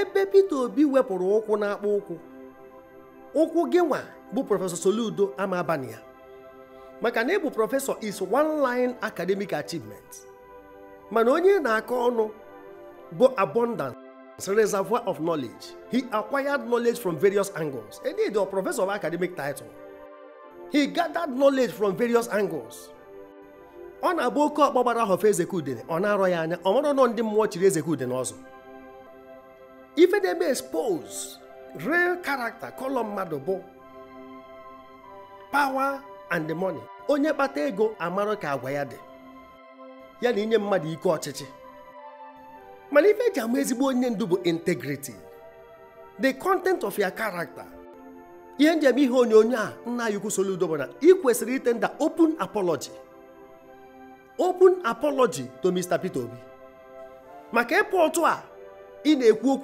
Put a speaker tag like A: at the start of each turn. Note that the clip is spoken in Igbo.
A: ebe Peter Obi wepụrụ ụkwụ n'akpa ụkwụ ụkwụ gị nwa bụ prọfesọ Soludo ama maka na ịbụ prọfesọ is one line academic achievement mana onye na-akọ ọnụ bụ abundance reservoir of knowledge he acquired knowledge from various angles indeed a prọfesọ of academic title he gathered knowledge from various angles ọ na-abụ oke ọkpọ gbara of ezekudene ọ na-arọ ya anya ọ nọ ndị mmụọ chiri ezekudene ọzọ ife na-eme expose real character kolọm mmadụ bụ power and the money onye kpata ego amarụ ka agwa ya dị ya na inye mmadụ ike ọchịchị mana ife eji ama ezigbo onye ndu bụ integrity the content of your character ihe njem ihe onyonyo a nna ya ukwu Soludo bụ na ị kwesịrị itenda open apology open apology to Mr. Peter Obi maka ịpụ otu a ị na-ekwu
B: okwu